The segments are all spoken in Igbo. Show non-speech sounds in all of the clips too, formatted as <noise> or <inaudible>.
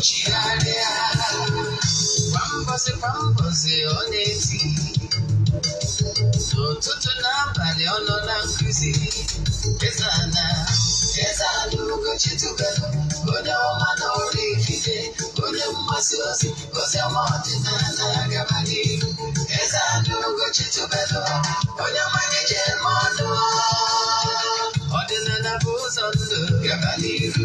chigharịa kwa mbọsị kwa mbọsị ọ na-eti n'ụtụtụ n'abalị ọ nọ na nkuzi ezana ezana ugochi tubelu onye ọma na ọrụ ikike onye mgbasa ozi ozi ọma ọdịnala gaba n'ihu ezana ugochi tubelu onye mmanya je eme ọnụ ọdịnala bụ ụzọ ndụ gaba n'ihu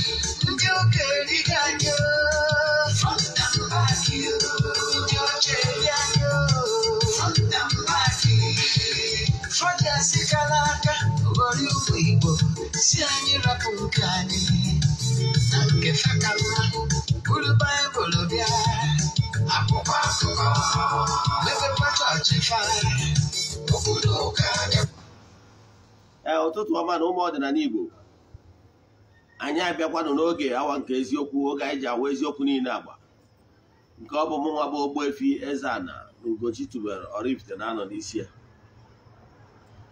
igbo si anyị rapụ nke anyị na nke ọma na ụmụ ọdịnala igbo anyị abịakwanụ n'oge awa nke eziokwu oge anyị ji awa eziokwu niile agba nke ọ bụ mụ nwa bụ efi Eze-Ana Ugochi tubelu Oraifite na-anọ n'isi ya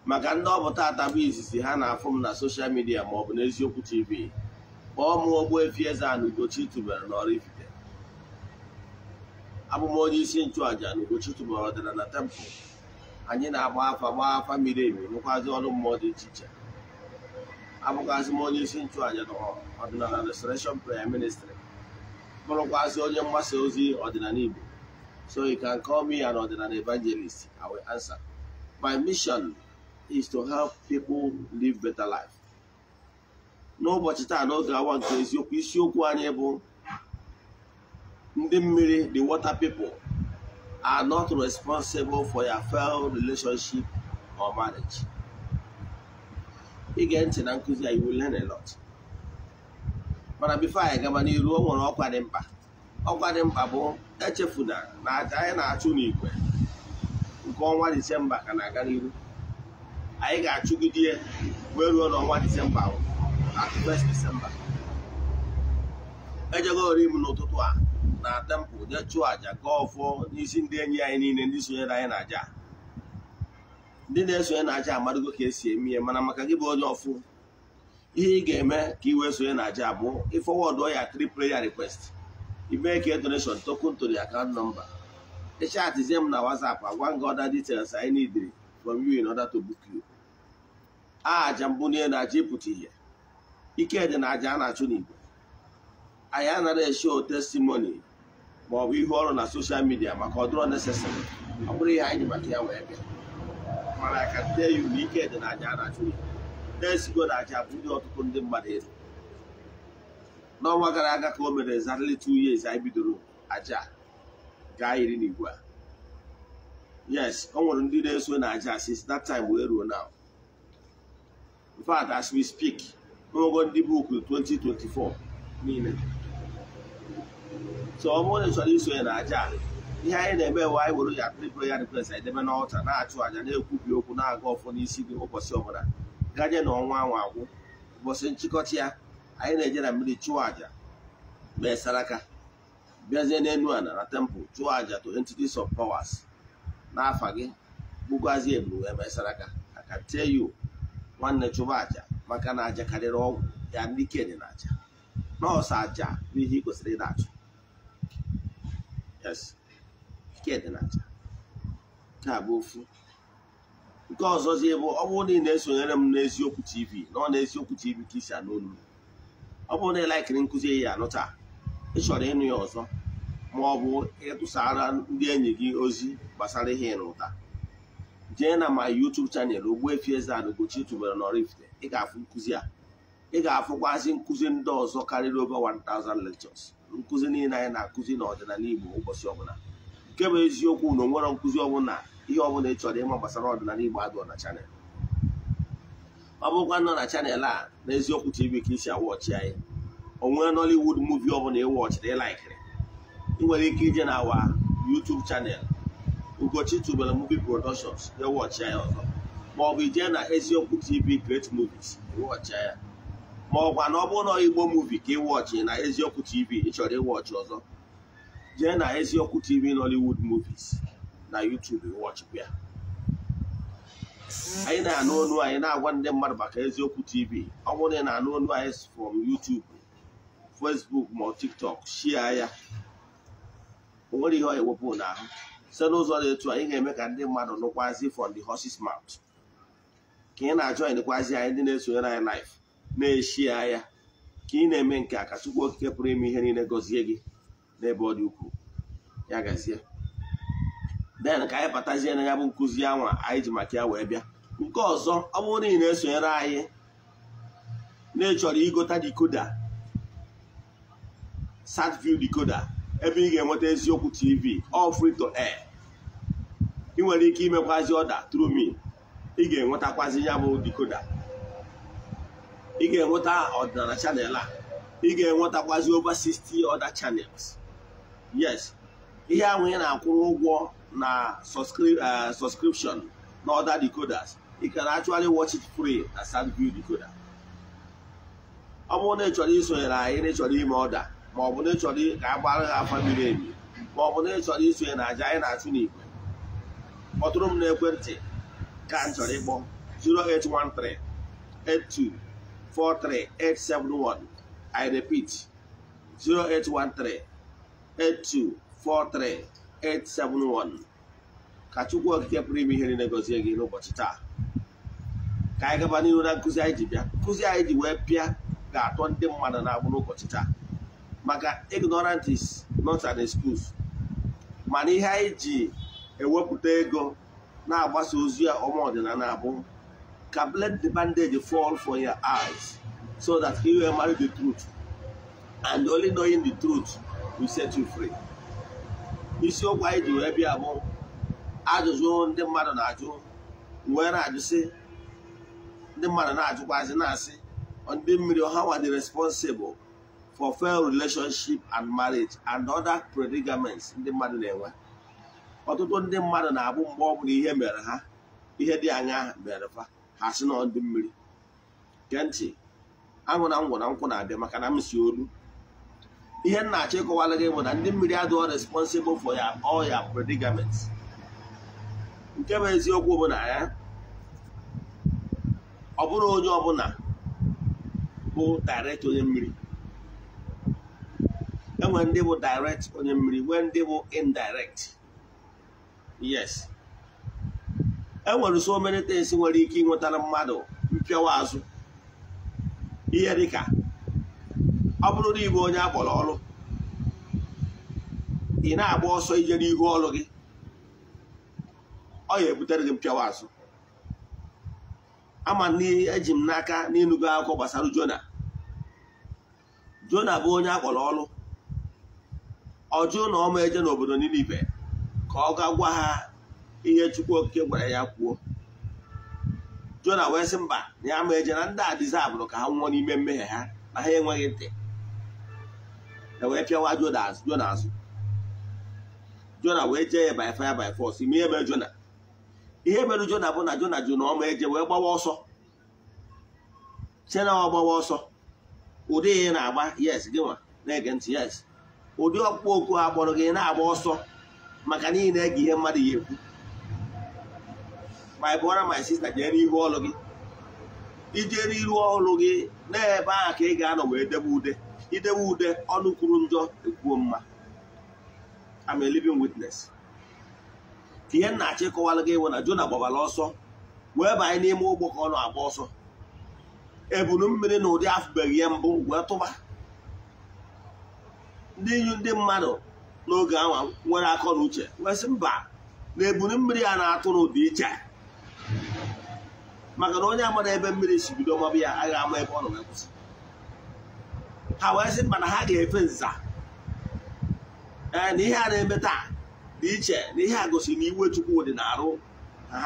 maka ndị ọ bụ bụ izizi ha na-afụ m na soshal midia maọbụ n'eziokwu tv kpọọ m Ogbuefi Eze-Ana Ugochi tubelu na Oraifite abụ onye isi nchụàja na Ugochi tubelu ọdịnala na tempụl anyị na-agba afa gbaa afa miri emi nwekwazị ọrụ mmụọ dị iche iche abụkwazị m onye isi nchụàja ọdịnala restoration prayer ministry bụrụkwazị onye mgbasa ozi ọdịnala Igbo so you can call me an ọdịnala evangelist I will answer my mission is to help people live better life n'ụbọchị taa n'oge awa nke eziokwu isiokwu anyị bụ ndị mmiri the water people are not responsible for your failed relationship or marriage. ige ntị na nkụzi a iwu learn a mana bifo anyị gaba n'iru o nwere ọkwa dị mkpa ọkwa dị mkpa bụ echefuna na aja anyị na-achụ n'igwe nke ọnwa disemba ka na-aga n'iru anyị ga-achụgide wee ruo n'ọnwa disemba disemba ejegori m n'ụtụtụ a na tempụ jee chụọ àja gaa ọfọ n'isi ndị enyi anyị niile ndị sonyere anyị na àja ndị na-esonye na-aja amadugo ka esi eme ihe mana maka gị bụ onye ọfụ ihe ị ga-eme ka ị wee sonye na-aja abụ ịfọwọdụ ya tri prayer request ime ka donation token to the nọmba. number ịchatizie m na WhatsApp agwa gị ọda details anyị need from you in order to book you aja mbụ na na-aja ịpụta ihe ike dị na aja a na-achụ n'Igbo. anyị anaghị esho testimony maọbụ ọ ọrụ na soshal midia maka ọdụrọ dụrọ necessary ọ bụrụ ihe anyị maka ya wee bịa a ka ndị ya na ike dị n'aja a na-achụ na-esigo n'aja bụ ndị ọtụtụ ndị mmadụ elu n'ọnwa gara aga ka o mere zarịlị two years anyị bidoro aja gaa iri na igwe a yes ọ nwere ndị na-eso na aja since that time wee ruo now in fact as we speak ogo ndị buku 2024 niile so ọ bụrụ na iso isonye na aja ihe anyị na-eme we anyị were ya tripụrụ ya rekwesị anyị debe na-achụ àja na-ekwubi okwu na-aga ọfọ n'isi gị ụbọchị ọbụla gaje na ọnwa anwa agwụ ụbọchị nchịkọta ya anyị na-eje na mmiri chụọ àja mee saraka bịazie n'elu ala na tempụl chụọ àja to entities of powers n'afa gị bugwazie ebulu wee mee saraka aka tie yu nwanne chụba aja maka na aja karịrị ọgwụ ya ndị ike dị na àja nọọsụ aja bụ ihe ị kwesịrị ịna-achụ yes Chidinacha nke a bụ ofu nke ọzọzi bụ ọ bụrụ na ị na-esonyere m n'eziokwu tv na ọ na-eziokwu tv ka isi anụ olu ọ bụrụ na ị laikiri nkụzi ya anụ taa ị chọrọ ịnụ ya ọzọ ma ọ bụ ịtụsara ndị enyi gị ozi gbasara ihe ụta jee na ma YouTube chanel Ogbuefi Eze-Ana Ugochi n'ọrụ na Oraifite ị ga-afụ nkụzi a ị ga-afụkwazị nkụzi ndị ọzọ karịrị over 1000 lectures nkụzi niile anyị na-akụzi n'ọdịnala Igbo ụbọchị ọbụla nke bụ eziokwu na onwere nkụzi ọbụla ihe ọbụla ị chọrọ ịma gbasara ọdịnala Igbo adụ na chanel ọ bụkwa nọ na chanel a na eziokwu tv ka isi awọchi anyị onwere nollywood muvi ọbụla ịwọchiri ịlaikiri ị nwere ike ije na awa YouTube chanel Ugochi tubelu muvi productions ịwọchi e anyị ọzọ ma ọ bụ ije na eziokwu tv great movies ịwọchi e ya ma ọkwa na ọ bụrụ na Igbo muvi ka ịwọchi na eziokwu tv ị ịwọchi ọzọ jee na eziokwu tv nollywood movies na youtube wọchịkwa anyị na-anụ onu anyị na-agwa ndị mmadụ maka eziokwu tv ọ bụrụ na ị na-anụ onu anyị from youtube facebook ma tiktok shia ya o nwere ihe ọ wepụ n'ahụ site n'ụzọ dị etu anyị ga-eme ka ndị mmadụ nụkwazi from the horse's mouth ka ị na-ajụ anyị anyị ndị na-esonyere anyị live na-eshi ya ka ị na-eme nke a ka Chukwu Okike pụrụ ime ihe niile gọzie gị n'ebe ọ dị ukwuu ya gazie den ka anyị batazie na ya bụ nkụzi anwa anyị ji maka ya wee bịa nke ọzọ ọ bụrụ na ị na-esonyere anyị na-echọrọ igota dikoda satview dikoda ebe ị ga-enweta eziokwu tv all free to air ị nwere ike imekwazi ọda through me ị ga-enwetakwazi ya bụ dikoda ị ga-enweta ọdịnala chanel a ị ga-enwetakwazi over 60 other channels yes ihe ahụ ị na-akwụrụ ụgwọ na uh, subscription na other decoders you can actually watch it free na SatView decoder ọ bụrụ na ị chọrọ isonyere anyị na ịchọrọ ime ọda ma ọ bụ na ịchọrọ ka a gbara ha afa miri emi ma ọ bụ na ịchọrọ isonye na aja anyị na-achụ n'igwe kpọtụrụ m n'ekwentị ka m chọrọ ịkpọ 08138243871 I repeat 0813 8243871 ka Chukwu Okike pụrụ ime ihe niile gọzie gị n'ụbọchị taa ka anyị gaba n'ihu na nkuzi anyị ji bịa nkụzi anyị ji wee bịa ga-atọ ndị mmadụ na-agbụ n'ụbọchị taa maka ignorant is not mana ihe anyị ji ewepụta ego na-agbasa ozi ọma ọdịnala abụ ka let the bandage fall for your eyes so that he will marry the truth and only knowing the truth we set you free isiokwu anyị ji wee bịa bụ ajụjụ ndị mmadụ na-ajụ wee na-ajụsị ndị mmadụ na-ajụkwazi na-asị ndị mmiri ọha dị responsible for fair relationship and marriage and other predicaments ndị mmadụ na-enwe ọtụtụ ndị mmadụ na-abụ mgbe ọ bụla ihe mere ha ihe dị anya mere fa ha sị na ọdụ mmiri ntị aṅụ na ngwụ na nkwụ na-abịa maka na m si olu ihe nna achọ ịkọwala gị bụ na ndị mmiri adịghị responsible for ya all ya predicament nke bụ eziokwu bụ na ya e, ọ bụrụ onye ọbụla bụ direct onye mmiri enwere ndị bụ direct onye mmiri nwee ndị bụ indirect yes enwere so many things nwere ike ịnwetara mmadụ mpịawa azụ ihe dịka ọ bụrụ na ịbụ onye akpọrọ ọrụ ị na-agba ọsọ ije n'ihu ọrụ gị ọ ya ebutere gị mpịawa azụ ama eji m n'aka n'ịnụgo akụkọ gbasara Jona Jona bụ onye akpọrọ ọrụ ọjụ na ọma eje n'obodo ibe ka ọ ga gwa ha ihe Chukwu Okike gwara ya kwuo Jona wee sị mba na ya ma eje na ndị a dịzi abụrụ ka ha nwụọ n'ime mmehie ha na ha enweghị ntị wee pịawa Jona Jona azụ Jona wee jee ya by fire by force ime ebe Jona ihe mere Jona bụ na Jona jụ ọ ma eje wee gbawa ọsọ chena ọ gbawa ọsọ ụdị ị na-agba yes gị nwa na-ege ntị yes ụdị ọkpụkpọ oku a kpọrọ gị na-agba ọsọ maka na ị na-ege ihe mmadụ ya ekwu my brother my sister jee n'ihu ọlụ gị ije n'iru ọlụ gị ebe ahụ ka ị ga-anọ wee debe ude idewe ude ọnụ kwuru njọ ekwuo mma I'm a living witness ka ihe nna achị kọwara gị na Jona gbabara ọsọ wee banye n'ime ụgbọ ka ọ na-agba ọsọ ebunu mmiri na ụdị afụbeghị ya mbụ wee tụba ndị nyu ndị mmadụ n'oge ahụ nwere akọ na uche wee sị mba na ebunu mmiri ya na-atụ n'ụdị iche maka na onye amara ebe mmiri si bido mabụ ya agaghị ama ebe ọ nọ na kwụsị ha wee sị na ha ga-efe nza ee eh, na ihe a na-eme taa dị iche na ihe a gosiri na iwe chukwu dị na-arụ ha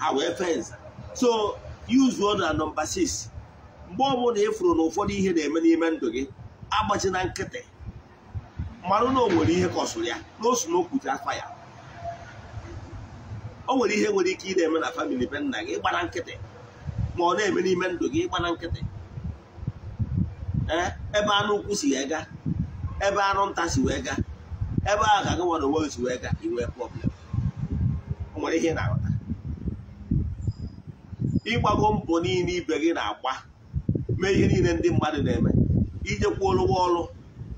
ha wee fe nza so yuzuo na nọmba 6 mgbe ọbụla ị fụrụ na ụfọdụ ihe na-eme n'ime ndụ gị agbachi na nkịtị mmanụ na o nwere ihe kọsụrụ ya na osu na okwute afa ya o nwere ihe nwere ike ị na-eme na famili be nna gị gbara nkịtị ma ọ na-eme n'ime ndụ gị gbara nkịtị Eh, ebe anụ ukwu si wee gaa ebe anụ nta si wee gaa ebe ahụ ga gị nwere onwe si wee gaa iwe problem o nwere ihe na-aghọta ịgbago mbọ niile ibe gị na-agba mee ihe niile ndị mmadụ na-eme ijekwuolu ụgwọ ọrụ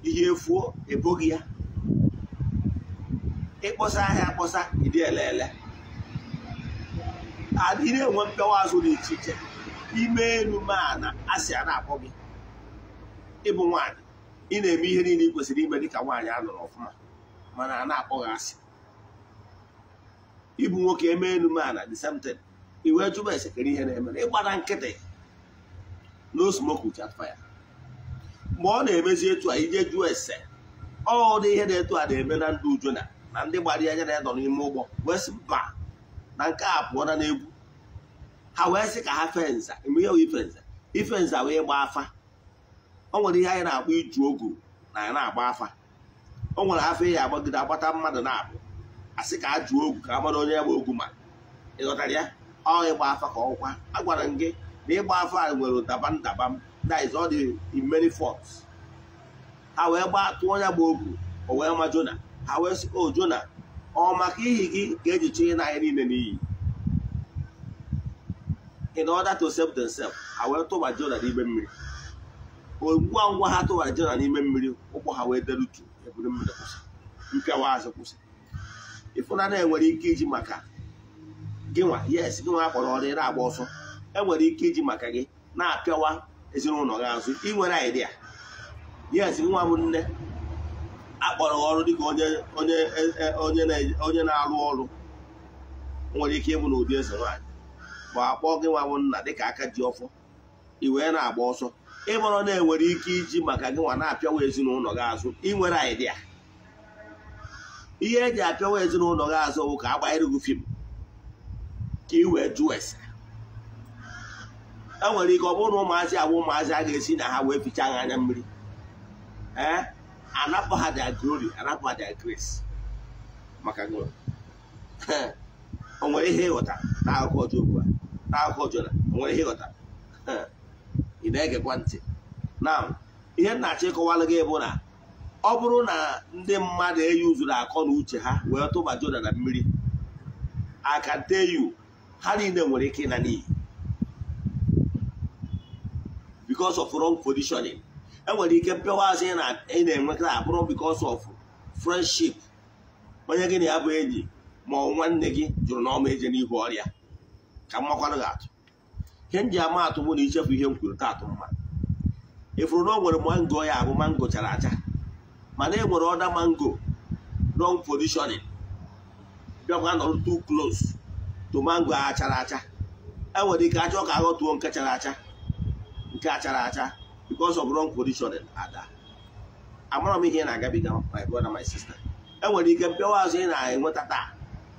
ihe efuo eboghị ya ịkpọsa ahịa akpọsa ịdị elele adị na-enwe mpewa azụ dị iche iche ime elu ma na asị a na-akpọ gị ịbụ nwaanyị ị na-eme ihe niile ị kwesịrị ime dịka nwaanyị a nọrọ ọfụma mana a na akpọghị asị ịbụ nwoke eme elu a the same iwe jụba esekere ihe na-eme ịgbara nkịtị no smoke without mgbe ọ na-emezi etu a ije jụọ ese ọ dị ihe na-etu a na-eme na ndụ uju na na ndị gbara anya na-edọ n'ime ụgbọ wee sị mba na nke a pụọ na n'egwu ha wee sị ka ha fenza eme ihe ifenza ifenza wee gbaa afa o nwere ihe anyị na agba iju ogu na anyị na-agba afa o nwere afa eyi agbagide agbata mmadụ na-abụ asị ka a jụọ ogu ka a mara onye ya ogu ma ị ghọtara ya ọ ịgba afa ka ọkwa a gwara m gị na ịgba afa nwere ụdaba ndaba m that is all the many faults ha wee gbaa tụọ onye bụ ogu o wee ma Jona ha wee sị o Jona ọ maka ihi gị ka eji chụnye niile n'iyi in order to save themselves ha wee tụba Jona n'ime mmiri ngwa ngwa ha tụghajira n'ime mmiri ụkwụ ha wee derutu eburu mmiri kwụsị mpịawa azụ kwụsị ịfụnanya enwere ike iji maka gịnwa yes gịnwa nwa akpọrọ ọrụ na-agba ọsọ enwere ike iji maka gị na-apịawa ezinụlọ gị azụ ị nwere idea yes gị nwa bụ nne akpọrọ ọrụ dịka onye e, e, na-arụ ọrụ nwere ike ịbụ n'ụdị eze nwaanyị ma akpọ gịnwa nwa bụ nna dịka aka ji ọfọ ị wee na-agba ọsọ ịbọrọ na-enwere ike iji maka gị na-apịawa ezinụlọ gị azụ inwere idea ihe eji apịawa ezinụlọ gị azụ bụ ka agbanyere gị fim ka ị wee jụọ ese e nwere ike ọ bụrụ na ụmụazị abụ ụmụazị a ga-esi na ha wee ficha anya mmiri ee anapụ ha dia glory anapụ ha dia grace maka gị <laughs> o nwere ihe ịghọta n'akụkọ Job a n'akụkọ Jona o nwere ihe ịghọta <laughs> ị na-egekwa ntị na ihe m na-achọ ịkọwalụ gị bụ na ọ bụrụ na ndị mmadụ eyuzuru akọ na uche ha wee tụba joda na mmiri aka teyu yu ha niile nwere ike na n'iyi because of wrong positioning enwere ike mpịawa asị ị na-enwekara abụrụ because of friendship onye gị na ya bụ enyi ma ọ nwanne gị jụrụ na ọma eje n'ihu ọrịa ka mmakwanụ ga-atụ ihe m ama atụ mụ na ichefu ihe m kwuru taatụ mma ịfụrụ e na o nwere mango ya abụ mango chara acha mana e nwere ọda mango wrong positioning bịakwa nọrọ too close to mango a chara acha e nwere ike achọ ka aghọtuo nke chara acha nke a chara acha because of wrong positioning ada amara m ihe ị na-agabiga my brother my sista e nwere ike mpịawa azụ ị na-enweta taa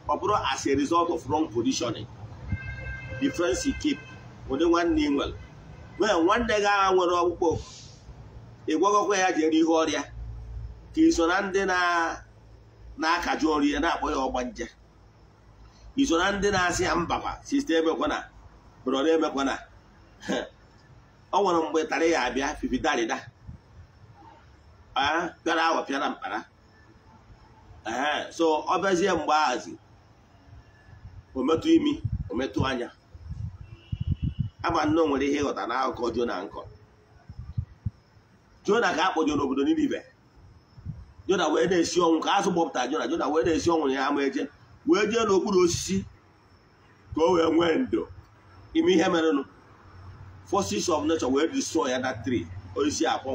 ọ bụrụ as a result of wrong positioning the friends keep ụdị nwanne ị nwere nwee nwanne gị agha nwere ọkpụkpọ ị ya jere ihe ọrịa ka iso na ndị na-akaju ọrụ na-akpọ ya ọgba nje iso na ndị na-asị ya mbakwa sista emekwana brọda emekwana <laughs> ọ nwere mgbe tarị ya abịa fifidarida pịara awa pịara mkpara so ọ bịazie mgbe ahazi ometụ imi ometụ anya agba nne nwere ihe ịghọta na akụkọ Jona nkọ Jona ka a n'obodo obodo ibe Jona wee na-esi ọnwụ ka azụ gbọpụta Jona Jona wee na-esi ọnwụ ya ama eje wee jee n'okpuru osisi ka o wee nwee ndo ime ihe merenụ forces of nature wee destroy ya na tree osisi akpọ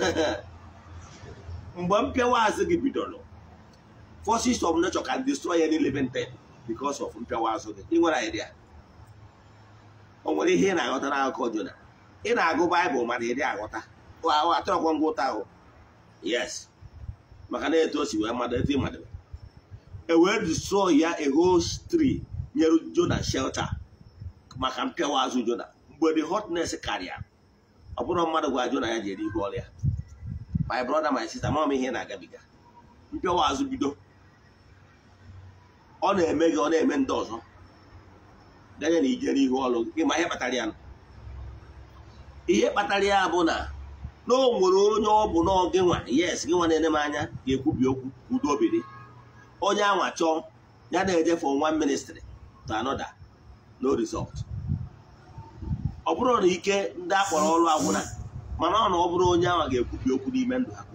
<laughs> mgbe mpịawa azụ gị bidoro forces of nature can destroy ya living nte because of mpịawa azụ gị ị nwere idea o nwere ihe ị na-aghọtara akụkọ Jona ị na-agụ baịbụl mana ịdị aghọta atọkwa ngwụta ahụ yes maka na etu o si wee mmadụ etu ịmadụ e wee dusụọ ya ehostri nyere Jona shelter maka mpịawa azụ Jona mgbe the hotness karịa ọ bụrụ mmadụ gwa Jona ya jere ihu ọrịa my brother my sister mama ihe na-agabiga mpịawa azụ bido ọ na-eme gị ọ na-eme ndị ọzọ danye na ijere ọrụ nke ma ihe kpatara ya ihe kpatara ya bụ na na o nwere onye ọ bụ na gị nwa yes gị nwa na-ene m anya ga-ekwubi okwu udo onye anwa chọọ ya na-ejefe nwa ministri to another no result ọ bụrụ na ike ndị akpọrọ ọrụ agwụna mana ọ na ọ bụrụ onye anwa ga-ekwubi okwu n'ime ndụ ha ka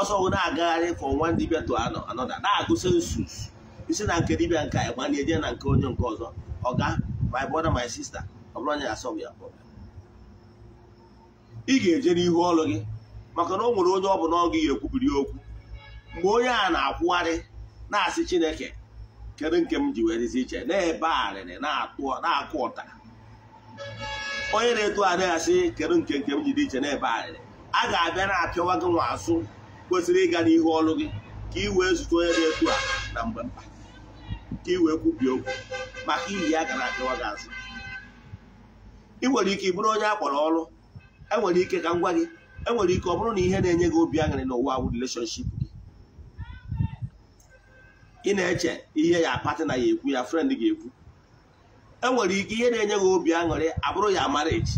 ọsọ na-agagharị nwa ndị dibia to another na-agụsị nsus isi na nke dibịa nke anyị na-eje na nke onye nke ọzọ ọ ga my brother my sister ọ bụrụ onye asọm ya ị ga-eje n'ihu ọlụ gị maka na o nwere onye ọ bụ na ọ gị ga-ekwubiri okwu mgbe onye a na-akwụgharị na-asị chineke kedu nke m ji wee dịzi iche na-ebe arịrị na-akụ ụta onye na-eto anaghị asị kedu nke nke m ji dị iche na-ebe arịrị a ga-abịa na-apịawa gị nwa asụ kwesịrị ịga n'ihu ọlụ gị ka ị wee zute onye na-eto a na mgbe mkpa ka i e wee kwubie okwu maka iyi ya gara akịwa gị azụ ị nwere ike bụrụ onye kpọrọ ọrụ enwere ike ka ngwa gị enwere ike ọ bụrụ na ihe na-enye gị obi aṅụrị n'ụwa awụ releshọnship gị ị na-eche ihe ya apatị na ya ekwu ya frend ga-ekwu enwere ike ihe na-enye gị obi aṅụrị abụrụ ya marriage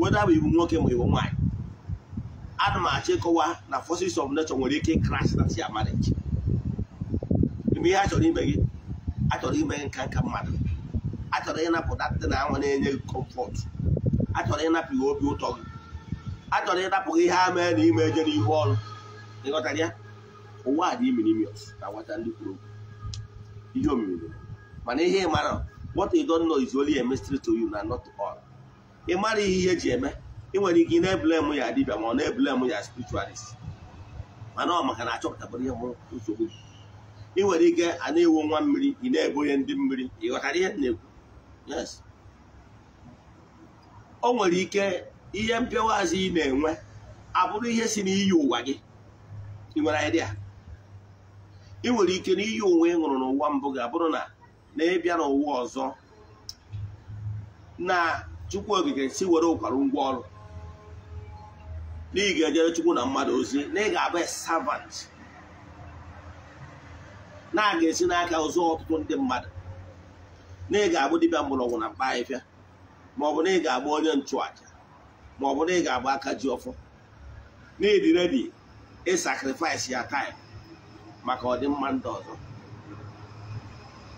weda bụ ibu nwoke ma iwu nwaanyị ana m achọ ịkọwa na forces of nature nwere ike crash na ya marriage ihe a chọrọ ime gị achọrọ ime nka nka mmadụ achọrọ ịnapụta ndị na anwa na-enye gị kọmfọt achọrọ ịnapụ ihe obi ụtọ gị achọrọ ịnapụ gị ihe ha mee na ime eje n'ihu ọrụ ịghọtara ya ụwa dị imirimios na nwata ndị kwuru ihe omimiri mana ihe ị mara what you don't know is only a mystery to you na not all ị mara ihe ihe eji eme ị nwere ike ị na-ebulem ya dibịa ma ọ na-ebulem ya spiritualist mana ọ maka na achọpụtabụrụ ihe nsogbu gị ị nwere ike a na-ewu nwa mmiri ị na onye ndị mmiri ghọtara ihe na-ekwu yes o nwere ike ihe mpịawazi azụ ị na-enwe abụrụ ihe si n'iyi ụwa gị ị nwere idea nwere ike na iyi ụwa ị ṅụrụ n'ụwa mbụ ga-abụrụ na na ịbịa n'ụwa ọzọ na chukwu ogige si were ụkwara ngwa ọrụ na ị ga-ejere chukwu na mmadụ ozi na ị ga-abụ servant na a ga-esi n'aka ụzọ ọtụtụ ndị mmadụ na ị ga agbụ dibịa mgbọrọgwụ na mkpa ahịfịa maọbụ na ị ga-agba onye nchụaja maọbụ na ị ga-agba aka ji ọfọ na ịdị redi ya taịm maka ọdịmma ndị ọzọ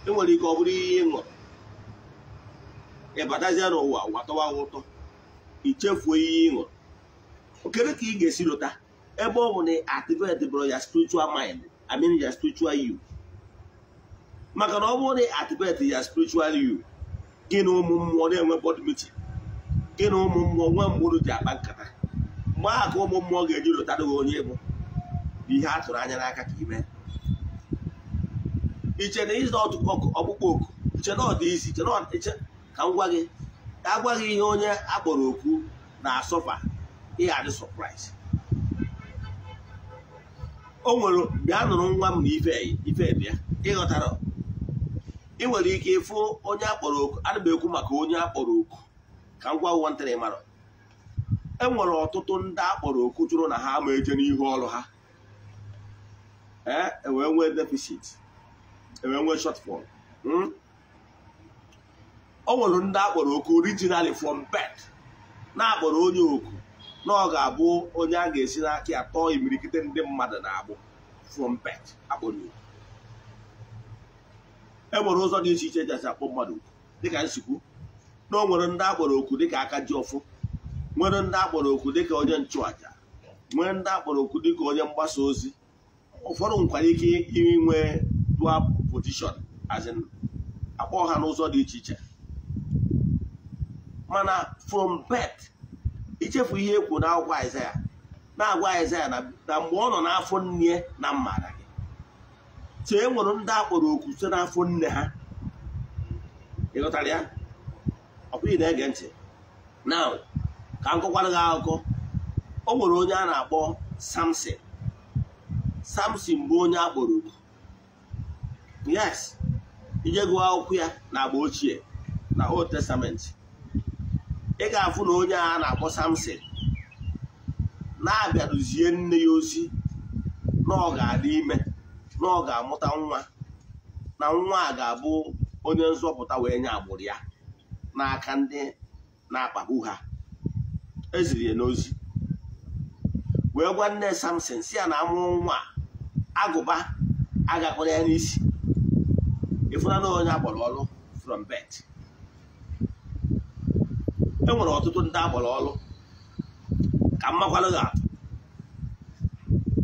e nwere ike ọ bụrụ ihe ị ṅụrụ ịbatazie n'ụwa watọwa ụtọ ichefuo ihe ị ṅụrụ okere ka ị ga-esi lụta ebe ọ bụ na activate bụrụ ya spiritual mind I mean ya spiritual maka na ọ bụrụ na activate ya spiritual you gị na ụmụ mmụọ na-enwe board meeting gị na ụmụ mmụọ nwe mgbụrụ ji akpa nkata mgbe aha ka ụmụ mmụọ ga-eji rụtara gị onye bụ ihe a tụrụ anya n'aka ka ime iche na ịzụ ọkpụkpọ oku iche na ọ dị isi iche na ka m gwa gị agwa gị ihe onye akpọrọ oku na-asọfa ihe dị sọpraịz o nwere bịa nụrụ nwa m na ife ife bịa ịghọtara ị nwere ike ịfụ onye akpọrọ oku ana ekwu maka onye akpọrọ oku ka m gwa nwantịrị mara e nwere ọtụtụ ndị akpọrọ oku jụrụ na ha ma eje n'ihu ọrụ ha ewee e nwee deficit ewee nwee shotfọl hmm? o nwere ndị akpọrọ oku originally from bed na-akpọrọ onye oku na ọ ga-abụ onye a ga-esi n'aka ya tọọ imirikite ndị mmadụ na-abụ from bed akpọrọ oku e nwere ụzọ dị iche iche eji akpọ mmadụ dịka nsikwu na o nwere ndị akpọrọ oku dịka aka ji ọfụ nwere ndị akpọrọ oku dịka onye nchụaja nwere ndị akpọrọ oku dịka onye mgbasa ozi ụfọdụ nkwara ike inwe dua pozishọn azin akpọ ha n'ụzọ dị iche iche mana from bet ichefu ihe ekwu na akwụkwọ Aịzaya na-agwa Aịzaya na mgbe ọ nọ n'afọ nne na mmara so e nwere ndị akpọrọ okwu site n'afọ nne ha ịghọtara ya ọkwụghị na-ege ntị na ka m gị akụkọ o nwere onye a na-akpọ samson samson bụ onye akpọrọ okwu yes ije gụọ akwụkwọ ya na agba ochie na old testament ị ga-afụ na onye a na-akpọ samson na-abịarụzie nne ya ozi na ọ ga-adị ime na ọ ga-amụta nwa na nwa a ga-abụ onye nzọpụta wee nye agbụrụ ya n'aka ndị na-akpagbu ha eziri ya n'ozi wee gwa nne samson si ya na amụrụ nwa agụba agakpọrọ ya n'isi ịfụnana onye agbọrọ ọrụ from bet e nwere ọtụtụ ndị agbara ọrụ ka mmakwalụ ga-atụ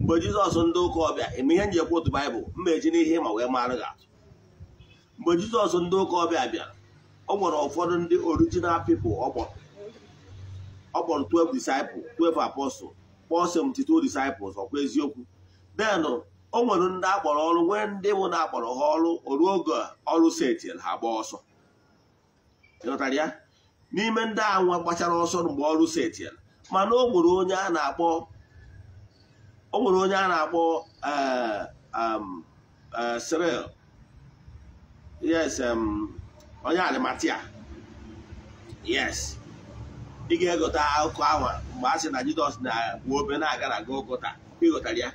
mgbe jizọs ndị ụka ọbịa eme ihe njikwa otu baịbụl mma eji n'ihe ma wee mara gị atụ mgbe jizọs ndị ụka ọbịa bịara ọ nwere ụfọdụ ndị original people ọ kpọrọ 12 disciples 12 apostles kpọọ 72 ọkwa eziokwu den o nwere ndị akpọrọ ọrụ nwee ndị bụ na akpọrọ ha ọrụ oruo oge ọrụ setil ha gbaa ọsọ ịghọtara ya n'ime ndị anwa gbachara ọsọ mgbe ọrụ setil mana o nwere onye a na-akpọ o nwere onye a na-akpọ eh, um, eh, Cyril yes um, onye adịmatia yes ị ga-egote akụkọ ahụ mgbe a sị na Jizọs na bụ obe na-aga na Gọlgọta ịghọtara ya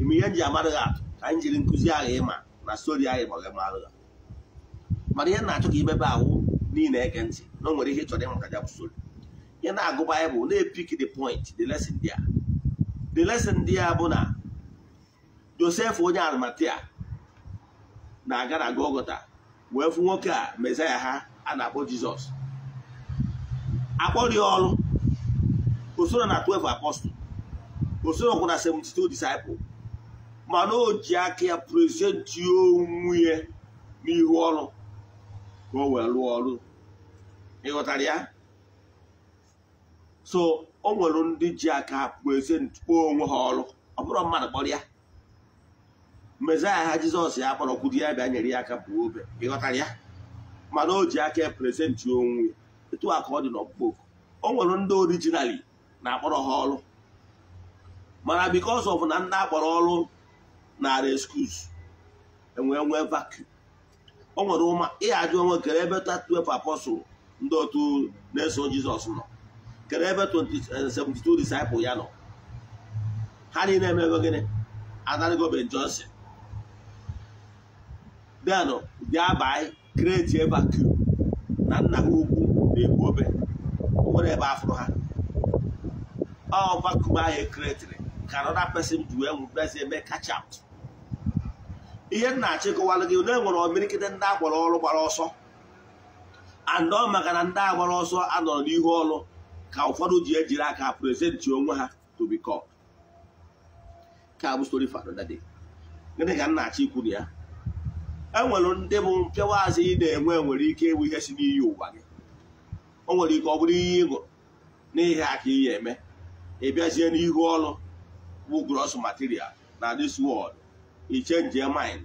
ime ihe nji e amadụghị atụ ka anyị jiri nkụzi ahụ ịma na stori anyị maghị amadụghị mana ihe na-achọ ka imebe ahụ niile ege ntị na o nwere ihe chọrọ ịmụta ya bụ stori ihe na-agụ Baịbụl na-epik the point the lesson there the lesson ndị ya bụ na josef onye almatia na-aga na gogota wee fụ nwoke a mesaya ha a na-akpọ jizọs akpọrọ ya ọrụ osoro na 12 apostol osoro kwụ na 72 Disciples, mana o ji aka ya prezenti onwunye na n'ihu ọrụ ka ọ wee rụọ ọrụ ịghọtara ya so o nwere ndị ji aka pụọ eze onwe ha ọrụ ọ bụrụ mmadụ kpọrọ ya mezaya ha jizọs ya kpọrọ kwuru ya bịa nyere ya aka pụọ obe ịghọtara ya mana o ji aka prezentị onwe ya etu a ka ọ dị n'ọkpụkpọ o nwere ndị orijinali na-akpọrọ ha ọrụ mana bikos ọf na ndị akpọrọ ọrụ narị skus enwee nwee vacuum o nwere ụma ịghaji onwe kere ebe tatuwepụ apọsụl ndị otu na-eso jizọs nọ kedụ ebe 72 disciples ya nọ ha niile emebe gịnị adarigo Ben Johnson denụ bịa bai kreti vacuum na nna ha ukwu na-egbu obe nwere ebe afụrụ ha ọ vacuum ahụ ekretiri ka anọda pesin ji wee nwụbezi eme catch out ihe nna achịkọwalụ gị na enwere omirikite ndị agbara ọrụ gbara ọsọ andọ maka na ndị agbara ọsọ anọrọ n'ihu ọrụ ka ụfọdụ ji ejiri aka prezentị onwe ha to become ka bụ story for another gịnị ka achọ ikwu na ya enwere ndị bụ mpịawazi ị na-enwe nwere ike ịbụ ihe si n'iyi ụwa gị o nwere ike ọ bụrụ ihe ị gụrụ n'ihe aka ihe eme ị bịazie n'ihu ọrụ bụ gross material na this world i change mind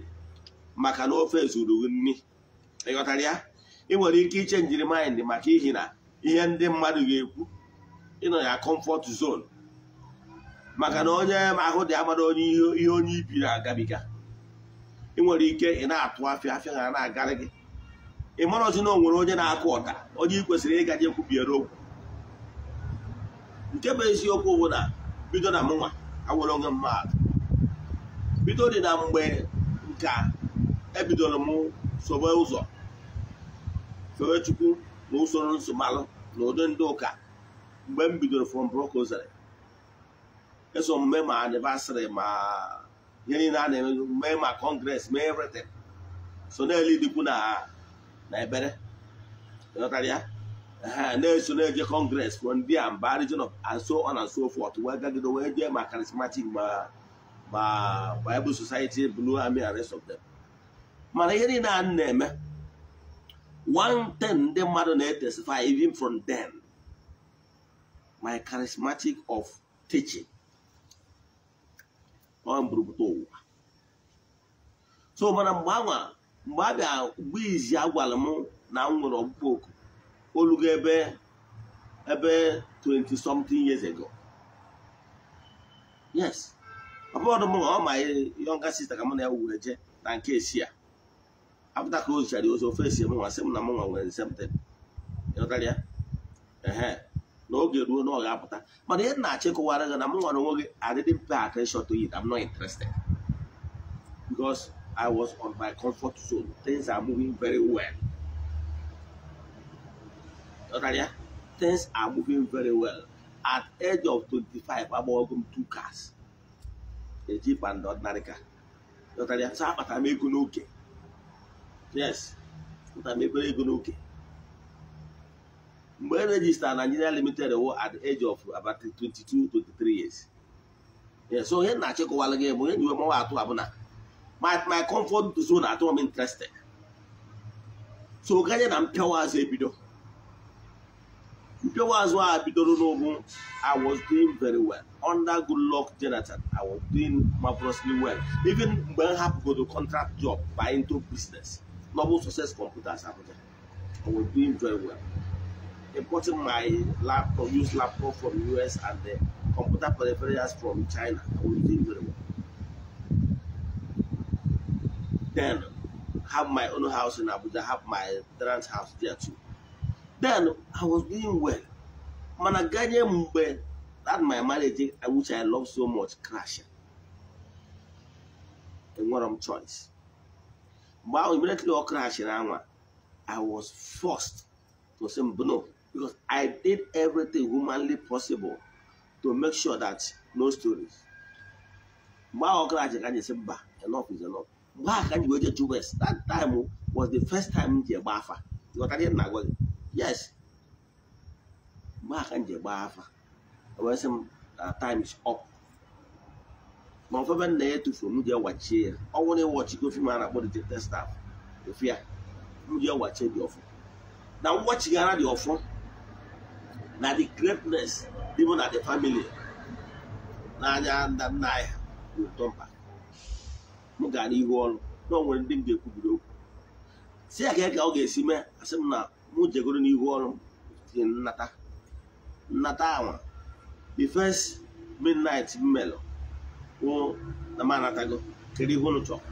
maka na ofe zuru nri ịghọtara ya ị nwere ike ichenjiri mind maka ihi na ihe ndị mmadụ ga-ekwu ịnọ ya kọmfọt zon maka na onye ahụ dị amara onye ihe onye na agabiga ị nwere ike ị na-atụ afịa afịa ha na-agarị gị ị mara ozi na o nwere onye na-akụ ọta onye ị kwesịrị ịga je kwubiere okwu nke bụ eziokwu bụ na bido na mụnwa awere onwe mmadụ bido dị na mgbe nka ebidoro m sobe ụzọ fewe chukwu na usoro nsọmalụ na ụdị ndị ụka mgbe m bidoro from Brocozary eh, eso mme ma anniversary ma ihe niile a na-eme mee ma kọngres mee everything so na-eli dịkwu na na ebere ịghọtara ya na-eso na-eje kọngres from there mba region of and so on and so forth wee gagide wee jee ma charismatic ma ma Bible Society blu ami and rest of mana ihe niile a na-eme one thing ndị mmadụ na-etesify even from den. my charismatic of teaching ọ mburubuta ụwa so mana mgbe anwa mgbe a bịa mgbe izi agwara m na m nwere ọkpụkpọ oku olugo ebe ebe 20 something years ago yes ọ bụrụ mụ na ọ ma yọnga sista ka mụ na ya were jee na nke esi ya apụta ka o zichara ozi ofe esi m nwa sị m na m nwa nwere nsemte ya ehe na oge ruo na ọ ga-apụta mana ihe na-achịkọwara gị na m nwere onwe gị I didn't pay attention to it I'm not interested because I was on my comfort zone things are moving very well ya things are moving very well at age of 25 agbago m two cars eji panda ordinary car ya so akpata m ego n'oke yes akpata m ego n'oke mgbe e rejista Nigeria Limited wụ at the age of about 22 23 years so ihe na-achịkọwala gị bụ ihe nyiwe mmanwa atụ abụna my comfort zone atụ m interested so ganye na mpịawa azụ ebido mpịawa azụ a bidoro n'ụbụ I was doing very well under Goodluck Jonathan I was doing marvelously well even mgbe m hapụgodo contract job by into business novel success computers Abuja I was doing very well importing my laptop, used laptop from US and the computer peripherals from China. I will do very well. Then have my own house in Abuja, have my parents' house there too. Then I was doing well. Mana guardian that my marriage, which I love so much, crashing. And what I'm choice. But immediately all crashing, I was forced to say, no, because I did everything humanly possible to make sure that no stories. Mgbe ahụ ọkara ji ka si mba enough is enough. Mgbe ahụ ka anyị wee jeju West that time was the first time m ji egba afa ịghọtara ihe na gị yes mgbe ahụ ka m ji egba afa wee sị m na time is up. ma ofebe nna ya tụfuru m ji ewachie ya ọ nwụrụ ịwọchiko fim a na-akpọ the testa efu ya m ji ewachie dị ọfụ na ngwachigara dị ọfụ na the greatness even na the family n'anya nna nna anyị bụ ụtọ mba m gara n'ihu ọrụ na onwere ndị m ga-ekwubiri okwu si ya ka ọ ga-esi mee asị m na mụ jegoro n'ihu ọrụ tinye nnata nnata anwa the first midnight m melụ wụ na m anatago kere ihe ụnụ chọrọ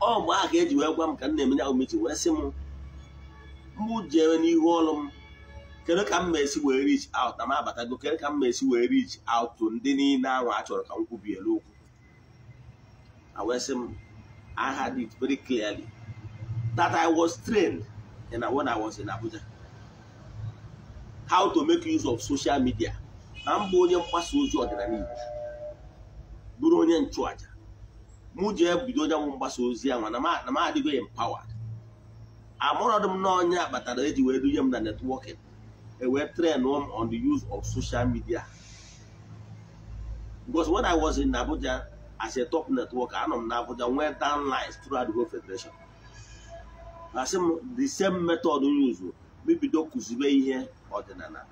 ọ mgbe aha ka eji wee gwa m ka m na-emenye ahụ mechi wee sị m mụ jere n'ihu ọrụ m kedu ka m esi wee reach out na m abatago kedu ka m esi wee reach out ndị niile ahụ a chọrọ ka m kwubielu okwu awesị m I had it very clearly that I was trained in when I was in Abuja how to make use of social media na mbụ onye mgbasa ozi ọdịnala Igbo bụrụ onye nchụaja mụ jee bido onye nwụ mgbasa ozi ahụ na m adịgo empowered amụrọdụ m n'ọnya kpatara eji wee dunye m na netwọkịn wee train m on the use of social media because when I was in Abuja as a top network I m na Abuja nwee downlines throughout the whole federation asị m the same method use mebido kụzibe ihe ọdịnala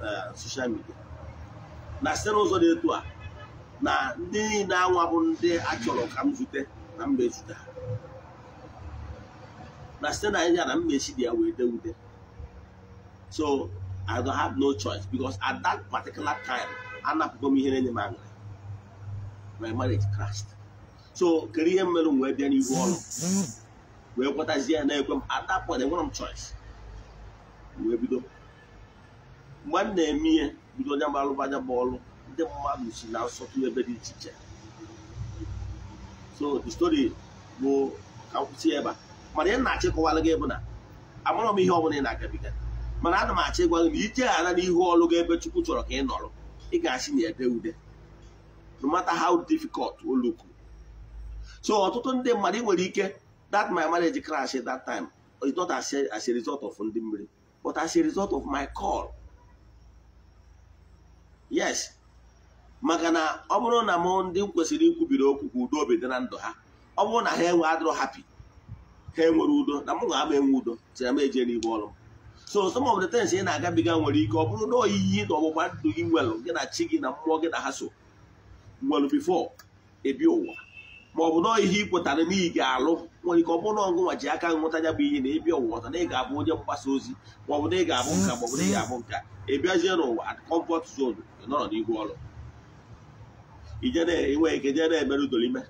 na social media na site n'ụzọ dị etu a na ndị niile anwa bụ ndị a chọrọ ka m zute na mba ezute na site na ya na mmechi dị ya wee so i don't have no choice because at that particular time anapụgo m ihe na-enye m aṅụrị my marriage crashed so kedu ihe m mere m wee bịa n'ihu ọrụ wee kwetazie ya na-ekwe at that point enwere m choice wee bido mgbe m na-eme ihe bido onye mgbalụba anya bụ ọrụ ndị mmadụ si na nsọtụ dị iche iche so the story ebe a mana ihe na-achịkọwara gị bụ na amara m ihe ọ ị na mana ana m achọ ịgwa gị na ije ghara n'ihu ọrụ gị ebe Chukwu chọrọ ka ị nọrọ ị ga-asị na ede ude no matter how difficult oluku so ọtụtụ ndị mmadụ ị nwere ike that my marriage crash that time it's not as a result of ndị mmiri but as a result of my call yes maka na ọ bụrụ na mụ ndị kwesịrị ikwubiri okwu ka udo obi dị na ndụ ha ọ bụrụ na ha enwe adịrọ hapi ha enwere udo na mụ ga-ama enwe udo si na m eje n'ihu m so some of the things ị na-agabiga nwere ike ọ bụrụ na oyiyi na ọgbụgba ndụ gị nwelụ gị na chi gị na mmụọ gị na ha so nwelụ bifo ebi ụwa ma ọ bụ na ihe ị n'ihi ga-alụ nwere ike ọ bụrụ na ọgụ nwa ji aka nghọta ya bụ ihe na ebi ụwa ọta na ị ga-abụ onye mgbasa ozi ma ọ bụ na ị ga-abụ nka ma ọ bụ na ị ga-abụ nka ebiazie n'ụwa at comfort nọrọ n'ihu ọrụ ije na-enweghị ike jee na-emerụ udolime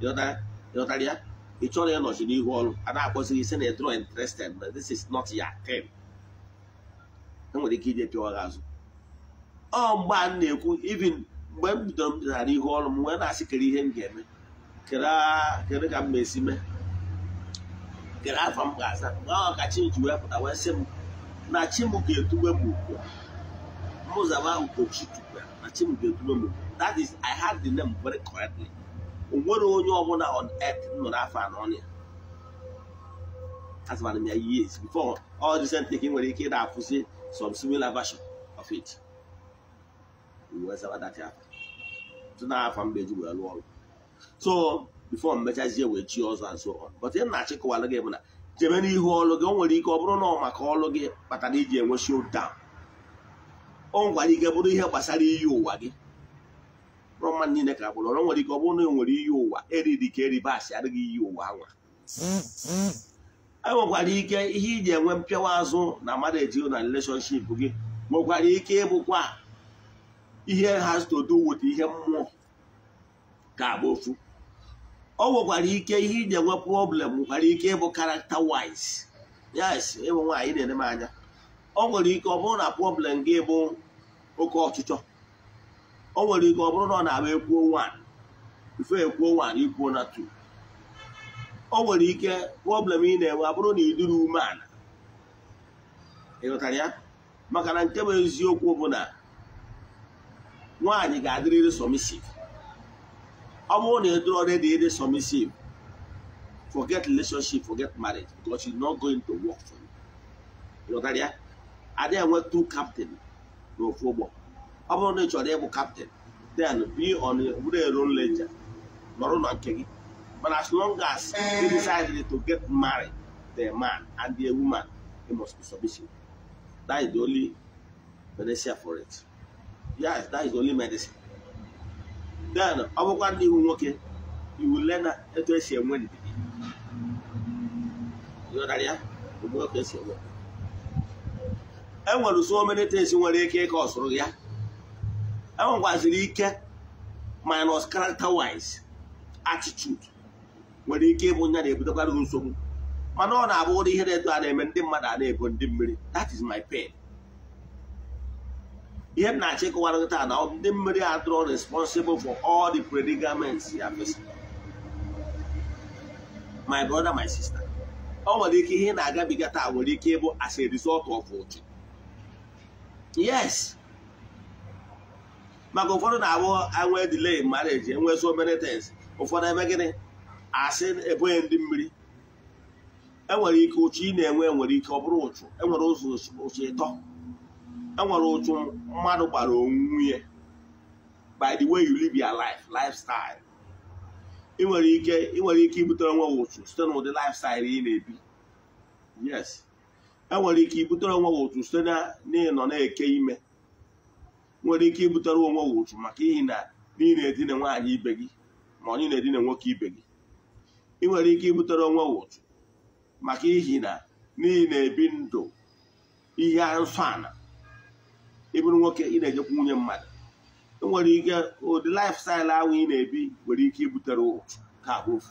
ịghọtara ya ị chọrọ nọchi n'ihu ọrụ a na-akpọzi gị sị na ịdro interested but this is not your thing enwere ike ije pịwa gị azụ ọ mgbe a na-ekwu even mgbe m bidoro m dịnara ihu ọrụ m wee na-asị kere ihe m ga-eme kere ka m ma esi mee kere afọ m ga-aza mgbe ahụ ka chinji wee pụta wee sị m na chi m ga-etugbe m ugbu a mụzaba ugochi tukwe na chi m ga-etugbe m that is I had the name very correctly o nwere onye ọbụla on earth nọ n'afọ anọ ya asịbara m ya years before all recent ka ị nwere ike ị na-akwụsị some similar version of it n'afọ mgbe eji wee lụọ ọrụ so before mmechazie wee chi ọzọ and so on but ị na-achịkọwara gị bụ na jebe n'ihu ọlụ gị o nwere ike ọ bụrụ na ọ maka ọlụ gị kpatara iji enwe showdown o nwere ike bụrụ ihe gbasara iyi ụwa gị rọma mma niile ka bụrụ ọrụ nwere ike ọ bụrụ na e nwere iyi ụwa eriri ka eribasị adịghị iyi ụwa anwa enwekwara ike ihe iji enwe mpịawa azụ na mmadụ ejio na relationship gị nwekwara ike ịbụkwa ihe has to do with ihe mmụọ ka abụ ofu ọ nwekwara ike ihe iji enwe problem nwekwara ike ịbụ character wise yes ịbụ nwaanyị na-ene anya ọ nwere ike ọ bụrụ na problem gị bụ oke ọchịchọ o nwere ike ọ bụrụ na ọ na-agba ekwuo 1 ife ekwuo 1 ikwuo na tu o nwere ike problem ị na-enwe abụrụ na iduru ume ala ịghọtara ya maka na nke bụ eziokwu bụ na nwaanyị ga-adịrịrị submissive ọ bụrụ na ịdụrụ already dị submissive forget relationship forget marriage because it's not going to work for you ịghọtara ya adịghị enwe two captain n'ofu ụgbọ ọ bụrụ na ị chọrọ ịbụ kaptịn then be on bụrụ ero leja nọrọ na nke gị mana as long as you decided to get married the man and the woman they must be submission that is the only medicine for it yes that is the only medicine then ọ bụkwa ndị iwu nwoke iwu lena etu esi enwe ndidi ya enwere e so many things nwere ike ịka ọsụrụ ya enwekwaziri ike minus character wise attitude nwere ike ịbụ nya na-ebutekwara nsogbu mana ọ na-abụ ụdị ihe na-edo a na-eme ndị mmadụ a na-ebo ndị mmiri that is my pain ihe m na-achọ ịkọwara taa na ndị mmiri adịrọ responsible for all the predicaments ya fesara my brother my sister ọ nwere ike ihe na-agabiga taa nwere ike ịbụ as a result of ụjọ yes maka ụfọdụ na-abụ enwe delay marriage enwe so many things ụfọdụ ebe gịnị asị ebughị ndị mmiri enwere ike ụchụ ị na-enwe enwere ike ọ bụrụ ụchụ enwere ụzọ ụchụ ịtọ enwere ụchụ mmadụ gbara onwe ya by the way you live your life lifestyle ị nwere ike ị nwere ike ibutere onwe ụchụ site n'ụdị lifestyle ị na-ebi yes enwere ike ibutere onwe ụchụ site na n'ịnọ na-eke ime nwere ike ibutere onwe gị ụchụ maka ihi na ị na-edina nwaanyị ibe gị ma onye na-edina nwoke ibe gị ị nwere ike ibutere onwe gị ụchụ maka ihi na n'ihi na-ebi ndụ ihe nsọ ana ịbụrụ nwoke ị na-ejekwa nwunye mmadụ ị nwere ike ụdị lifestyle ahụ ị na-ebi nwere ike ibutere ụchụ ka ofu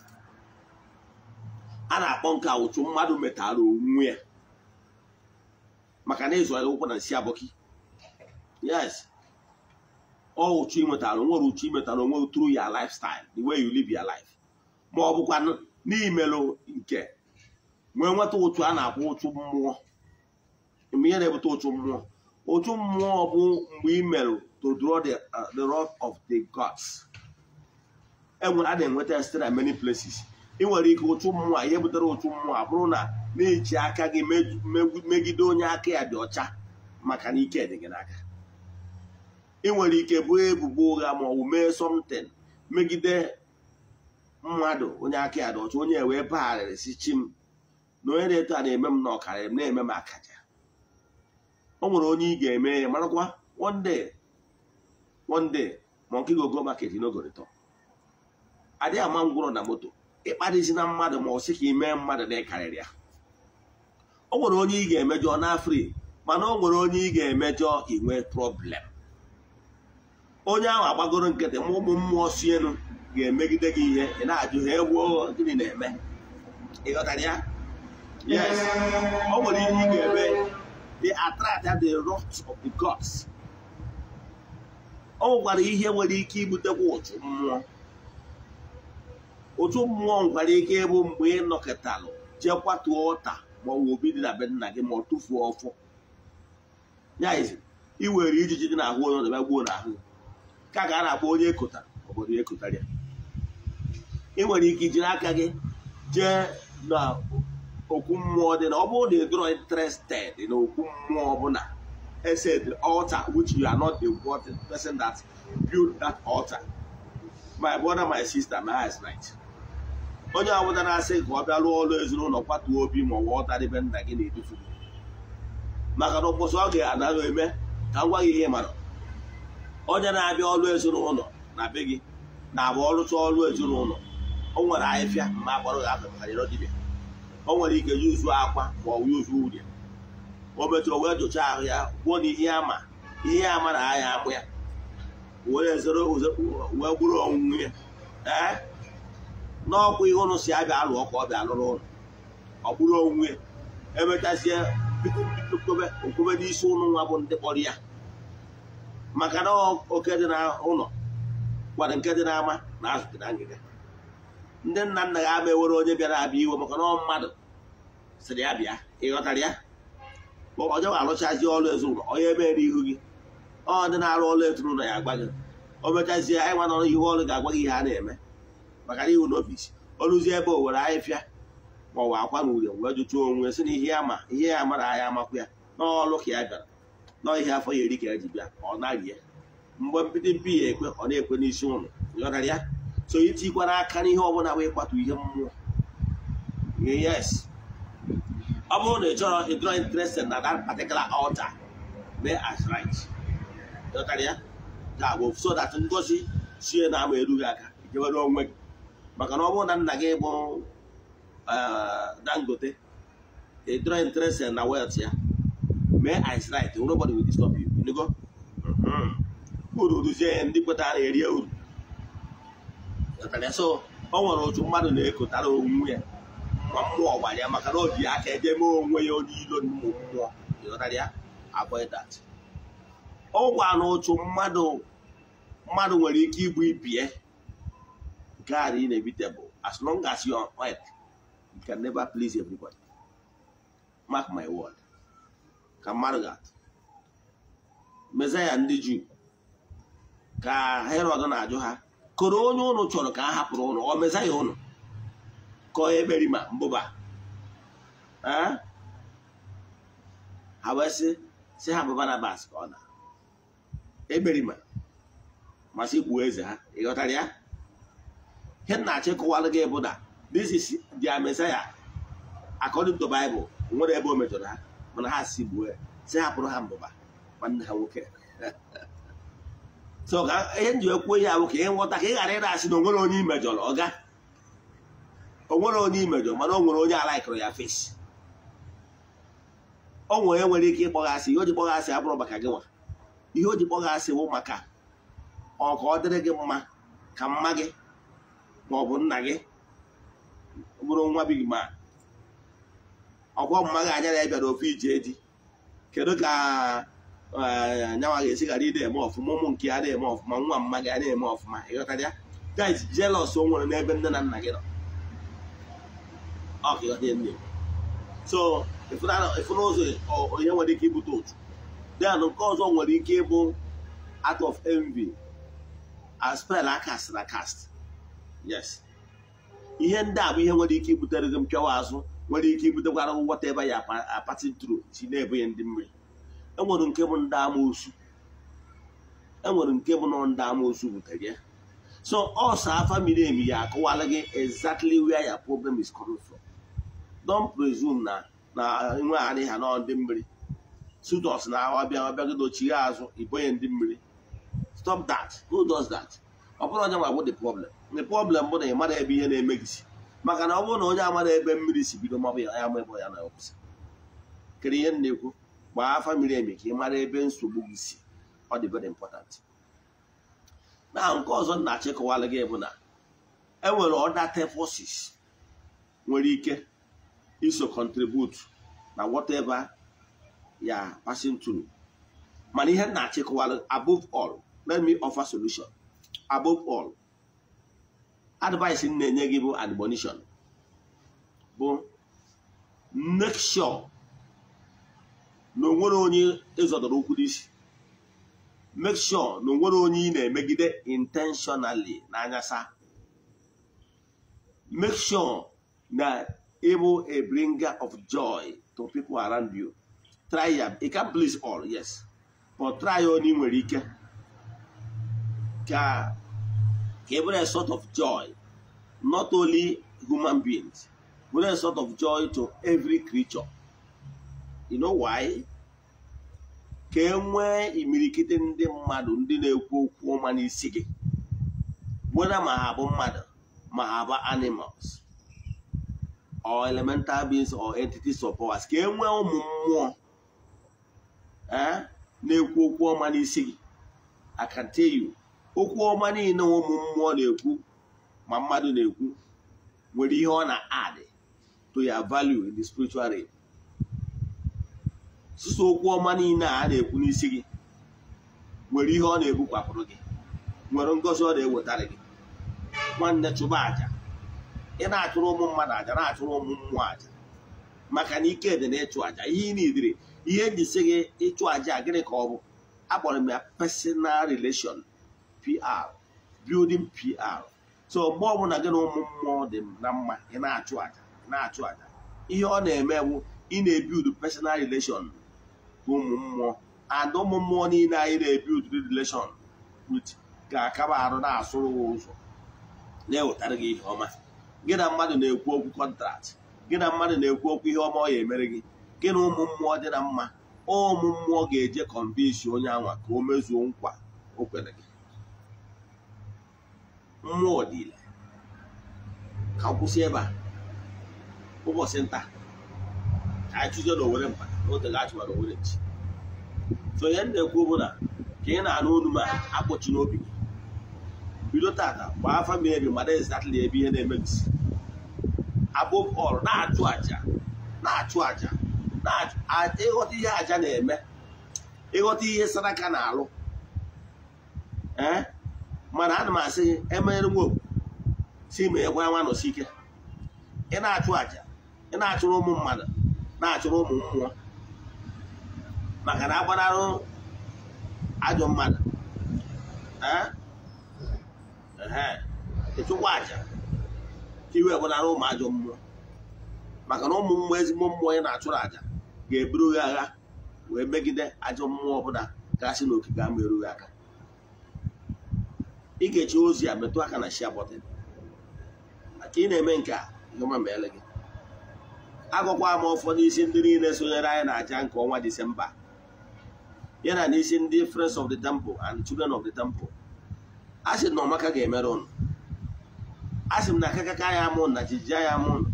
a na-akpọ nke ụchụ mmadụ metara onwe ya maka na ịzụ ụkwụ na nsi abọki yes ọ uchu imetara nwere uchu imetara onwe through your lifestyle the way you live your life ma ọ bụkwa n'imelụ nke nwee nweta ụchụ a na akwụ ụchụ mmụọ mgbe ihe na-ebute ụchụ mmụọ ụchụ mmụọ bụ mgbe imelụ to draw the, uh, of the gods e a na-enweta site many places ị nwere ike ụchụ mmụọ ihe butere ụchụ mmụọ bụrụ na na-eji aka gị megide onye aka ya dị ọcha maka na ike dị gị n'aka ị nwere ike bụrụ ebubo ụgha ma ọ bụ mee something megide mmadụ onye aka ya dị onye e wee bagharịrị si chi m na onye na-eto a na-eme m na ọkarịrị m na-eme m akaja o nwere onye ị ga-eme ya marakwa one day ma nke gogo market n'ogorịtọ adịghị ama ngwụrọ na moto ịkparịzi na mmadụ ma ọ sị ka ị mee mmadụ na ịkarịrị ya o nwere onye ị ga-emejọ na afri mana o nwere onye ị ga-emejọ inwe problem onye ahụ agbagoro nkịtị ma ụmụ mmụọ si elu ga-emegide gị ihe ị na-ajụ ha egwu gịnị na-eme ịghọtara ya yes o nwere ihe ị ga-eme the attract the rot of the gods o nwekwara ihe nwere ike ibutekwa ụtụ mmụọ otu mmụọ nwekwara ike ịbụ mgbe ị nọkịtalụ jee kwatuo ọta maọbụ obi dị na be nna gị ma ọ tụfuo ọfọ ya ị i were ijiji dị na-ahụ onye ọdịbịa gbuo n'ahụ ka ga na-akpọ onye ekotara obodo ekotara ya ị nwere ike iji aka gị jee na okwu mmụọ dị na ọ bụrụ na ị interested na okwu mmụọ ọbụla e set altar which you are not the person that build that altar my brother my sister my right onye ọbụla na-asị ka ọ bịa rụọ ọrụ ezinụlọ kwatuo obi ma ọ ọta dịbe nna gị na-edufu maka na ụbọchị ọ ga-anaghị eme ka m gwa gị ihe mara onye na-abịa ọrụ ezinụlọ na be gị na abụ ọrụcha ọrụ ezinụlọ o nwere ahịfịa ma akpọrọ gị afọ maka dibịa o nwere ike yuzu akwa ma ọ yuzu urie o metụrụ wee jụchaa ahụ ya gwuo na ihe ama ihe ama na ahịa akpụ ya wee gburu onwunwe ya ee n'ọkwa ihe ụnụ si abịa alụ ọkụ ọ bịa lụrụ ụlọ ọ gburu onwunwe emechazie bikobe okwube n'isi ụnụ nwa bụ ndị kpọrọ ya maka na oke dị n'ụlọ gwara nke dị n'ama na azụta na ngịga ndị nna nna ga ewere onye bịara abịa iwe maka na ọ mmadụ sịrị ya bịa ịghọtara ya onye ga-arụchazi ọrụ ezinụlọ onye mere ihu gị ọ dị na-arụ ọrụ ezinụlọ ya agba gị o mechazie anyị nwa na ihu ọrụ ga-agwa gị ihe a na-eme maka na iwu n'ọfisi ọrụzie ebe o were ahịfịa ma ọ wa akwa na ure wee jụtụọ onwe si na ihe ya ma ihe ya mara ahịa amakwa ya n'ọrụ ka ya bịara ihe afọ ya eri ka eji bịa ọ narie mgbe mbido mpi ya ekwe ọ na-ekwe n'isi ụlọ ya so itikwa n'aka n'ihe ọbụla bụ ịkwatu ihe mmụọ yes ọ bụrụ na ị chọrọ ịdọrọ interested na dat particular altar mee as right ya ga-abụ so that ngozi sie na ama erughị aka jewere onwe gị maka na ọ bụrụ na nna gị bụ eh, dangote ịdọrọ interested na wet ya mee ice right nobody will disturb you ịnụgo mm-hmm. uru ruzie ihe ndị kpetara erie uru so ọ nwere otu mmadụ na-ekotara onwe ya ma mmụọ gbara ya maka na o ji aka edeme onwe ya onye ilo mmụọ ịghọtara ya avoid that ọ gwa na otu mmadụ mmadụ nwere ike ịbụ ibie God is inevitable as long as you are on you can never please everybody mark my word ka mmadụ ga-atụ mezaya ndị juu ka herod na-ajụ ha koro onye ụnụ chọrọ ka a hapụrụ ụnụ ọ mesaya ụnụ ka ọ ekperi mbụba ha wee sị sị ha bụ Barnabas ka ọ na ekperima masị ikwu eze ha ịghọtara ya ihe nna achịkọwalụ gị bụ na this is their Messiah nwere ebe o mejọrọ ha mana ha si gbuo ya si hapụrụ ha mbụba nwanne ha nwoke so ka ihe nji ekwuo ihe ahụ ka ị nghọta ka ị ghara ịra asị na onwere onye imejọrọ ọga onwere onye imejọ mana o nwere onye alaikụrụ ya fesi ọ nwere e nwere ike asị ihe o ji kpọghasị abụrụ maka gị nwa ihe o ji kpọghasị wụ maka ọ ọ dịrị gị mma ka mma gị ma ọ bụ nna gị bụrụ nwa bi gị ma ọkwa mmadụ anya na ya bịara ofu ije eji kedu ka anyanwa e, ga-esi ghara ịda eme ọfụma ụmụ nke ya na-eme ọfụma nwa mma gị na-eme ọfụma ịghọtara ya guys jealous o nwere n'ebe nne na nna gị nọ so ịfụna ụzọ onye nwere ike ibute otu then nke ọzọ nwere ike ịbụ out of envy a spell akasịrị akasị yes ihe ndị a bụ ihe nwere ike ibutere gị mpịawa azụ nwere ike ibutekwara ngwọta ebe ya apati tru ji na-ebu ya ndị mmiri enwere nke bụ ndị amoosu enwere nke bụ na ndị amoosu butere ya so ọsọ afa miri emi ya akọwala gị exactly where your problem is coming from don't presume na na nwe adịghị ha nọ ndị mmiri sudos na bịa ọbịa ọbịago dochie azụ ibonye ndị mmiri stop that who does that ọ bụrụ onye nwa bụ the problem the problem bụ na ị mara ebe ihe na-eme si maka na ọ bụrụ na onye amara ebe mmiri si bido mabụ ya ama ebe ya na kwụsị kere ihe na-ekwu gbaa afa miri emi ka ị mara ebe nsogbu gị si ọ dị very important na nke ọzọ na-achịkọwalụ gị bụ na enwere ọda forces nwere ike iso contribute na whatever ya passing mana ihe na-achịkọwalụ above all let me offer solution above all advice m na-enye gị bụ admonition bụ make sure na onwere onye ịzọdọrọ ụkwụ n'isi make sure na onwere onye ị na-emegide intentionally anyasa make sure na ịbụ a bringer of joy to people around you try ya it can please all yes but try onye ị nwere ike ka even a sort of joy, not only human beings, but a sort of joy to every creature. You know why? ka e nwee imirikiti ndị mmadụ ndị na-ekwu okwu ọma n'isi gị weda ma ha bụ mmadụ ma ha bụ animals or elemental beings or entities of powers ka e nwee ụmụ mmụọ eh, na-ekwu okwu ọma n'isi gị I can tell you okwu ọma niile ụmụ mmụọ na-ekwu ma mmadụ na-ekwu nwere ihe ọ na adị to ya value in the spiritual realm sụsụ okwu ọma niile a na-ekwu n'isi gị nwere ihe ọ na-ebukwapụrụ gị nwere ngozi ọ na-ewetara gị nwanne chụba aja ị na-achụrụ ụmụ mmadụ aja na-achụrụ ụmụ mmụọ aja maka na ike dị na ịchụ aja ihe ị na ihe eji si gị ịchụ aja gịnị ka ọ bụ akpọrọ m ya personal relation PR building PR so mgbe ọbụla gị na ụmụ mmụọ dị na mma ị na-achụ aja na-achụ aja ihe ọ na-eme bụ ị na-ebild personal relation ụmụ mmụọ ada ụmụ mmụọ niile anyị na-ebild relation with ga-akaba arụ na-asụrụ ụzọ na-ewetara gị ihe ọma gị na mmadụ na-ekwu okwu kọntrakt gị na mmadụ na-ekwu okwu ihe ọma ọ ya emere gị gị na ụmụ mmụọ dị na mma ụmụ mmụọ ga-eje kọmbisi onye anwa ka o mezuo nkwa o kwere gị nwa ọdịla ka m kwụsị ebe a ụbọchị nta ka anyị chụzie na owere mba n'oge gachụwa na owere nchi so ihe m na-ekwu bụ na ka ị na-anụ olu ma akpọchi n'obi gị bido tata gbaa afa m ebi mara ezatịla ebe ihe na-eme gị si above all na-achụ aja na-achụ aja ịghọta ihe aja na-eme ịghọta ihe saraka na-alụ ee mana ana m asị gị e emere nwa si ma egwa nwa nọsi ike ị na-achụ aja ị na-achụrụ ụmụ mmadụ na-achụrụ ụmụ mmụọ maka na agbanarụ ajọ mmadụ ịchụkwa aja iwe gbanara ụmụ ajọ mmụọ maka na ụmụ mmụọ ezigbo mmụọ ị na-achụrụ aja ga-eburu gị agha wee megide ajọ mmụọ ọbụla gasị n'okike ama erughị aka ikechi ozi a metụ aka na share button maka ị na-eme nke a ịhụma ma ele gị agụkwa m ụfọdụ isi ndị niile sonyere anyị na aja nke ọnwa disemba ya na n'isi ndị friends of the temple and children of the temple a sị na ọmaka ga-emere ụnụ a sị m na akakaka ya amụ na jijia ya amụ ụnụ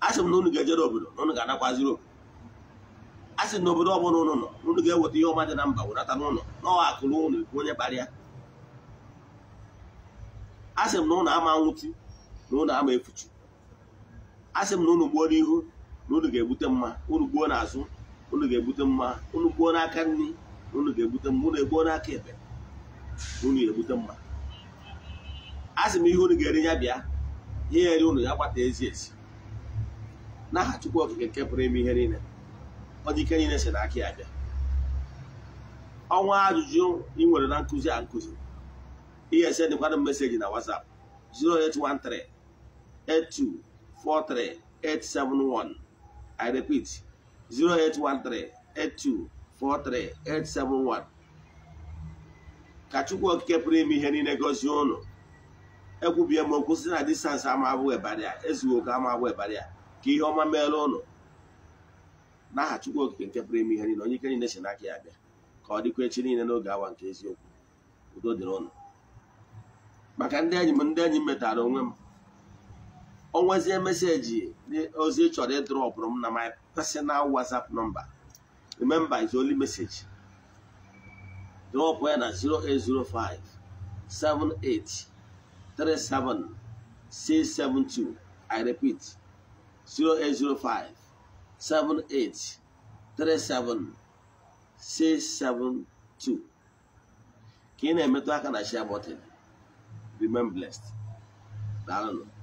a sị m na unu ga-ejere obodo na unu ga-anakwaziri obodo a sị na obodo ọbụla ụlọ nọ unu ga-eweta ihe ọma dị na mba wụnata n'ụlọ n'ọwa akụrụ ụlọ ekwu onye kparịa a sị m na ụlọ ama nwụchi na ụlọ ama efuchu, a sị m na ụlọ gbuo n'ihu na ụnụ ga-ebute mma ụnụ gbuo n'azụ ụnụ ga-ebute mma ụnụ gbuo n'aka nri na ụnụ ga-ebute mma ụlọ egbuo n'aka ebe na ụnụ ga-ebute mma a sị m ihe ụnụ ga-eri ya bịa ihe eri ụnụ ya gbata ezi ezi n'aha Chukwu Okike nke pụrụ ime ihe niile ọ dị ike na si n'aka ya bịa ọnwa ajụjụ ị nwere na nkụzi a nkụzi ihe ese dịkwana meseji na WhatsApp 0813 I repeat 0813 ka Chukwu Okike pụrụ ime ihe niile gọzie ụnụ ekwubie m okwu na distansị ama abụghị ebara ya ezughi ama abụghị ka ihe ọma meela ụnụ n'aha Chukwu Okike nke pụrụ ime ihe niile onye ike niile si n'aka ya bịa ka ọ dịkwa echi niile n'oge awa nke eziokwu udo dịrị ụnụ maka ndị enyi m ndị enyi m metara onwe m onwezie meseji ozi chọrọ ịdrọpụrụ m na my personal WhatsApp nọmba. remember is only message drọpụ ya na 0805 78 672 I repeat 0805 seven eight three seven six seven two ka ị na-emetụ aka na share button remain blessed daalụ